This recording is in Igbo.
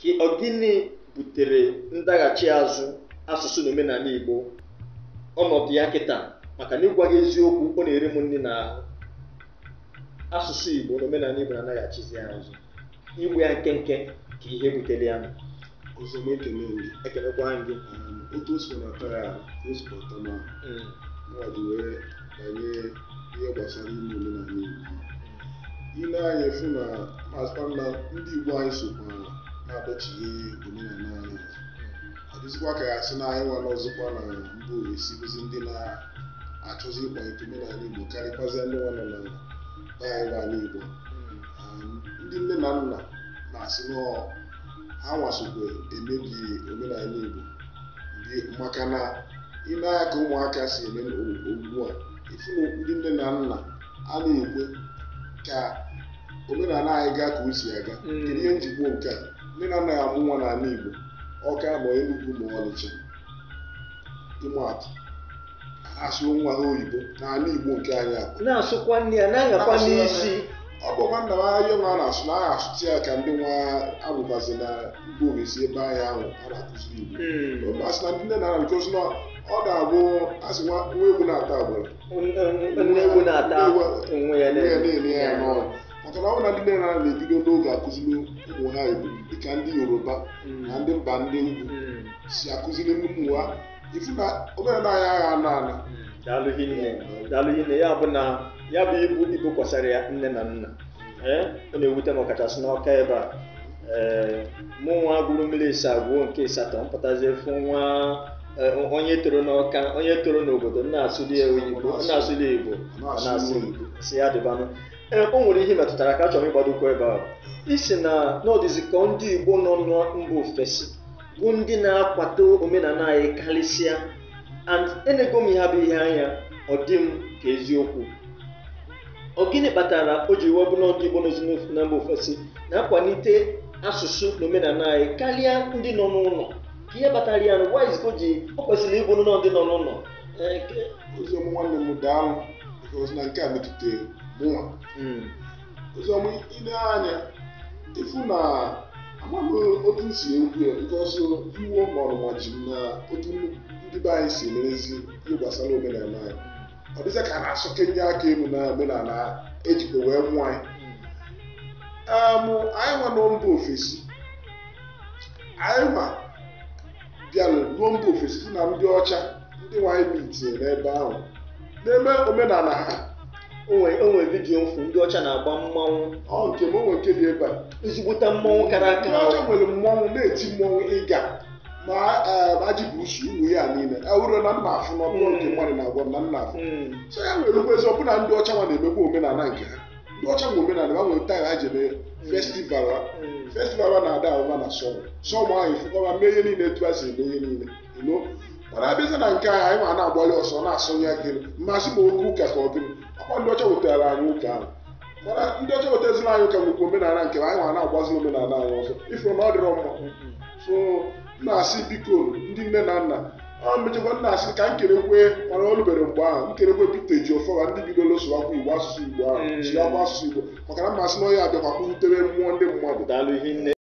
ka ọ gịnị butere ndaghachi azụ asụsụ na omenala Igbo ọnọdụ ya kịta maka na ịgwa gị eziokwu ọ na-eri m nri na asụsụ Igbo na omenala Igbo na-adaghachizi azụ igwe ya nkenke ka ihe butere ya ọzọ ekele gị ekelekwa gị um, otu o ya hmm. wee ihe gbasara ime omenala Igbo ile anya fụ na ndị Igbo anyị sokwa. na-adọchighi omenala anyị ọ dịzikwa ka ya sị na anyị nwere ọzọkwa na mba ụwa esibizi ndị na-achọzi ịkwalite omenala igbo karịkwazịa ndị nwanọ na anyị n'ala igbo um, ndị nne na nna na-asị na ha nwasokwa emebi omenala igbo maka na ị na ka ụmụaka si eme ugbu a ifu na ndị nne na nna a na-ekwe ka omenala anyị gaa ka o si aga hmm. kedu ihe njikwa nke a ndị na-anaghị amụ nwa n'ala Igbo ọka ma Enugu ma Ọnịcha atụ asụ nwa ha oyibo n'ala Igbo nke anyị akwa na-asụkwa nne ya na-anyakwa n'isi ọ bụkwa nna m ahịa nwa na-asụ na aha asụtụ ya ka ndị nwa abụbazi na Igbo owezi ebe ahịa ahụ a na-akụziri Igbo hmm. asị na ndị nne na nke bikozi na ọ na abụ asị nwa egwu na-ata agbụrụ nwa ewu na-ata onwe ya niile ya n'ọrụ maka na ọ na ndị nne na na-ebido n'oge akụziri ụmụ ha ibu dịka ndị yoruba na ndị mba ndị ugwu si akụziri ụmụ ha ifu na omenala ya agha ana ana daalụghị nne daalụghị nne ya bụ na ya bụ ibu ibu kwasara ya nne na nna ọ na-ewute m ọkachasị n'ọka ebe a ee mụ nwa gụrụ mmiri ịsa agwụo nke ịsatọ mpụtazi efu nwa onye toro n'ọka onye toro n'obodo na-asụli oyibo na-asụli igbo na-asụ igbo si ya dịbanụ o nwere ihe metụtara ka achọrọ ịgbadokwa ebe ahụ isi na n'ọdịzikọ ndị Igbo nọ mba ofesi bụ ndị na-akwado omenala anyị karịsịa and enego m ihe bụ ihe anya ọ dị m ka eziokwu ọ gịnị kpatara o ji webụ nọ Igbo nọzi na mba ofesi na-akwalite asụsụ na omenala anyị karịa ndị nọ n'ụlọ ka ihe kpatara ya o ji ọ kwesịrị ịbụ nọ ndị nọ n'ụlọ oziọma nwanne m daa m na nke a metụtara mụnwa ọzọ m ile anya ifu na amaghị otu m si ekwu ya bikọsụ iwu mọrụnwa ji m na otu ndị be anyị si merezi ihe gbasara omenala anyị ọ dịzị ka a na-asọke ndị aka elu na omenala ejikwa wee mụọ anyị anyị nwa nọ mba ofesi anyị nwa bịara ruo mba ofesi na ndị ọcha ndị nwanyị bi itinye n'ebe ahụ n'eme omenala ha onwe vidiyo mfu ndị ọcha na-agba mmanwụ ọ nke m onwe nke dị ebe a ezigbota mmanwụ kara aka ọcha nwere mmanwụ na-eti mmanwụ ịga ma e, ajị bụ usu uwe ya niile ewuro na nna afụ n'ọbụla nke hmm. mmadụ na-agwa na nna afụ hmm. so ya nwere ugbo ezi ọbụna ndị ọcha nwa na-emekwa omenala nke ha ndị ọcha nwe omenala ha nwere taa ha jebe festival hmm. festival na-ada ahụba na sọmụ sọmụ ahụ ifụkọba mee ihe niile etu a si eme ihe niile mana abịaza na nke anyị ma na agbali ọsọ na-asọnye akịrị mmasị ma oke ụka ka ọ gịnị ọkwa ndị ọcha wetara anyị ụka ahụ mana ndị ọcha wetazila anyị ụka nwekwa omenala nke anyị nwa na-agbazi omenala anyị ọzọ ifuru na ọ dịrọ mma so na-asị biko ndị nne na nna ọ mechakwa nna asị ka m kerekwe mana o rubere mgbe ahụ m kerekwe Pita Ejiofọwa ndị bidoro sụwakwa igbo asụsụ igbo ahụ chịakwa asụsụ igbo maka na mmasị na onye abịakwa kpụrutere mmụọ ndị mmadụ